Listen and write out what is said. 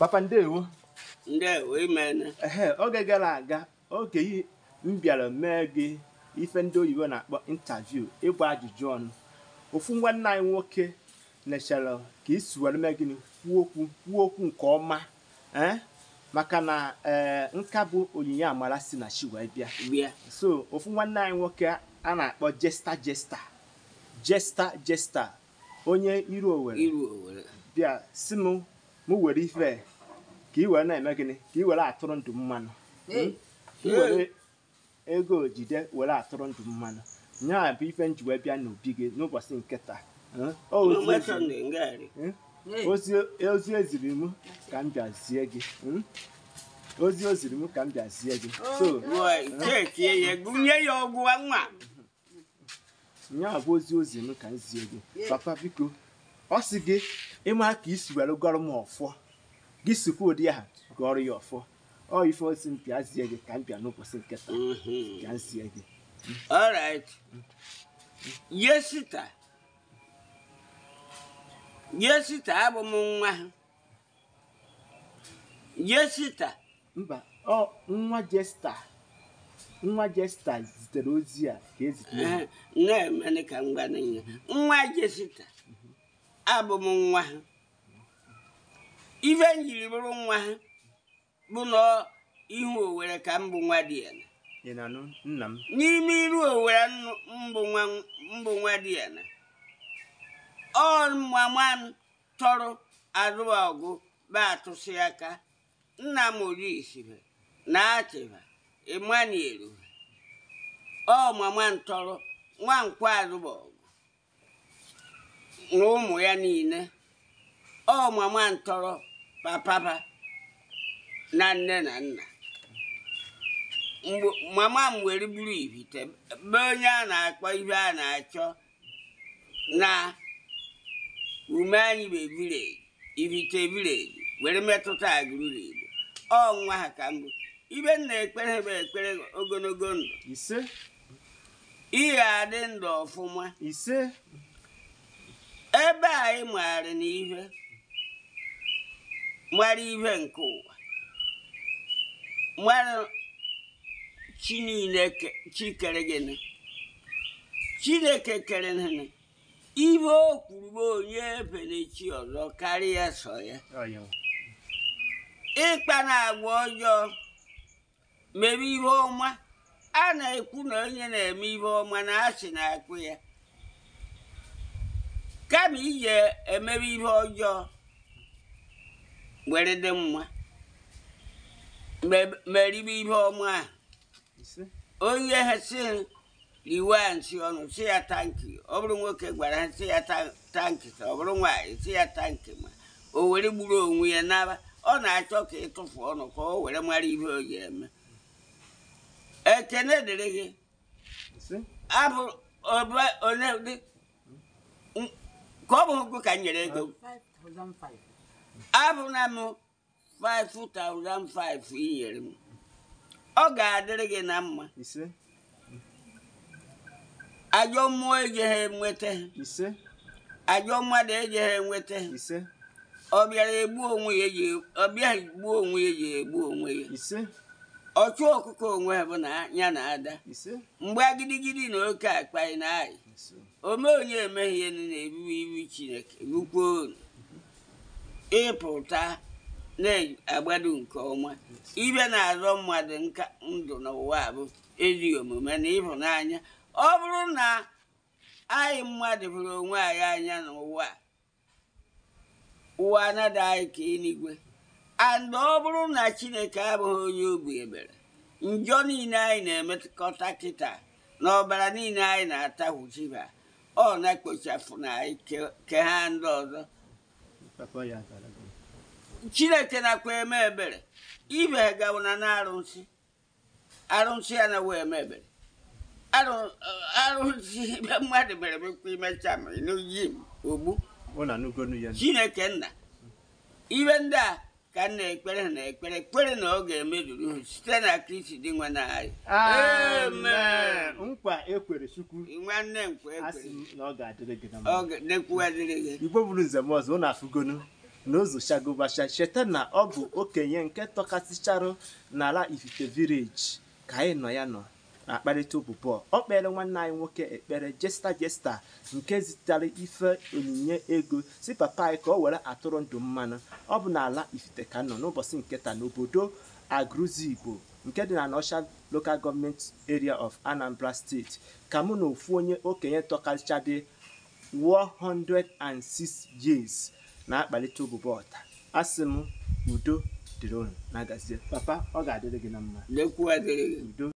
papa ndewo ndewo imene ehe oge gara aga oge yi m bịara mee gị ife ndị oyibo na-akpọ intaviu ịgba ajụjụ ọnụ ofu nwanne anyị nwoke nechara ka isi were mee gịnị kwuo okwu nke ọma eh? maka na ee eh, nka bụ onyinye amara si na chi wee bịa so ofu nwanne anyị nwoke a na-akpọ jesta jesta jesta jesta onye iru owere bịa si m m were ife ka ị were na-eme gịnị ka ị were atụrụ ndụ mmanụ hmm? were ego ojide were atụrụ ndụ mmanụ nya bụ ife nji wee bịa n'obi gị n'ụbọchị nke taa hmm? hmm? ozi eziri m ka m bịazie gị ozi o ziri m ka m bịazie gị oh, nya bụ ozi ozi m ka m zie gị papa biko ọ sị gị ịma ka isi were gọrọ m ọfọ gị sikwa ụdị aha gụọrụ ya ọfọ ọ ife osi mpịa zie gị ka mpịa n'ụbọchị nke taa mm-hmm. ka zie gị alright yesita yesita abụ m nwa ha yesita mba ọ nwa jesta nwa jesta zitere ozi a ka ezitere na-emene ka m gwa nwa jesita abụ m nwa ha ife m jiri bụrụ nwa bụ na ihu owere ka mbụ nwa dị ya n'ime iru owere mbụ nwa dị ya na ọ mama m tọrọ azụba ọgụ ba atụsị aka nna m orisibe na achịba emmanuel ọ mama m ntọrọ nwa nkwa azụba ọgụ na ụmụ ya niile ọ mama m ntọrọ. papaba na nne na nna mama m were buru ibite be onye a na-akpọ ibe a na-achọ na ume anyị bụ ebireji ibite were metụta agụrụ igbo ọ nwa ha ka mbụ ibe m ekpere bụ ekpere ogologo ndụ ise ị adị ndụ ọfụma ise ebe anyị ị maara nwere ihe nke ụwa nwere chi niile chi kere gịnị chineke kere gịnị ibe o kwuru onye ebenechi ọzọ karịa so ya ịkpa na agwa ọjọọ mere ihe ọma a na-ekwu na onye na-eme ihe ọma na asị na-akpụ ya kama ije emere ihe ọjọọ were dị mma meribe ihe ọma onye ha si riwe a nsi ọnụ si ya tankị ọ bụrụ nwoke gwara ha si ya tankị ọ bụrụ nwaanyị si ya tankị ma o were gburu onwe ya n'aba ọ na-achọ ka ịtụfu ọnụ ka o were mara ihe o ji eme ekene dịrị gị abụ ka ọ bụrụ ka m nyere ego abụna m 5005 inyere m ọ ga-adịrị gị na mma ajọ mmụọ enweta ajọ mmadụ ejegha enweta ọ bịara egbu onwe ya ọ bịaghị gbuo onwe ya ji egbu onwe ya ọchụ ọkụkọ onwe bụ na ya na ada mgbe agidigidi na oke akpa na anyị ome onye emeghị ihe na na-ebibi iwu chineke rukwuo ịpụta na-agbado nke ọma ibe na-azọ mmadụ nka ndụ n'ụwa bụ ezi omume na ịhụnanya ọ bụrụ na anyị mmadụ hụrụ onwe anyị anya n'ụwa ụwa anaghị anyị ka eluigwe and ọ bụrụ na chineke abụghị onye obi ebere njọ niile anyị na-emekọta kịta na ọbara niile anyị na-atahụchiba ọ na-ekpochapụ na anyị ke ha ndị ọzọ chineke na eme ebere ibe gawo na na-arụsị arụsị ya na wee eme ebere arụsị eh, mmadụ mere mekwa imecha ma n'oyi m ogbu chineke nna ibe ndị a ka m ekpere na ekpere ekpere na ọ ga-emezuru ha site na kristi dị nwa na anyị nkwa ekwere chukwu nwanne nkwa ekwere igbo bụrụ nzem ọzọ ụnụ afụgonu n'ụzọ ozochagobacha cheta na ọ bụ okenye nke tọkasịcharụ n'ala ifite village ka anyị nọ ya nọ na akparịta ụbụ ọ kpere nwanne anyị nwoke ekpere jesta jesta nke zitere ife onyinye ego si papa anyị ka ọ were atụrụ ndụ mmanụ ọ bụ n'ala ifite ka nọ n'ụbọchị nketa n'obodo igbo nke dị na n'osha Local Government Area of Anambra State ka mụ na ofu onye okenye tọkaricha dị 106 years na akpalite ụbụbọ ọta asị udo dịrị na papa ọ ga-adịrị gị na mma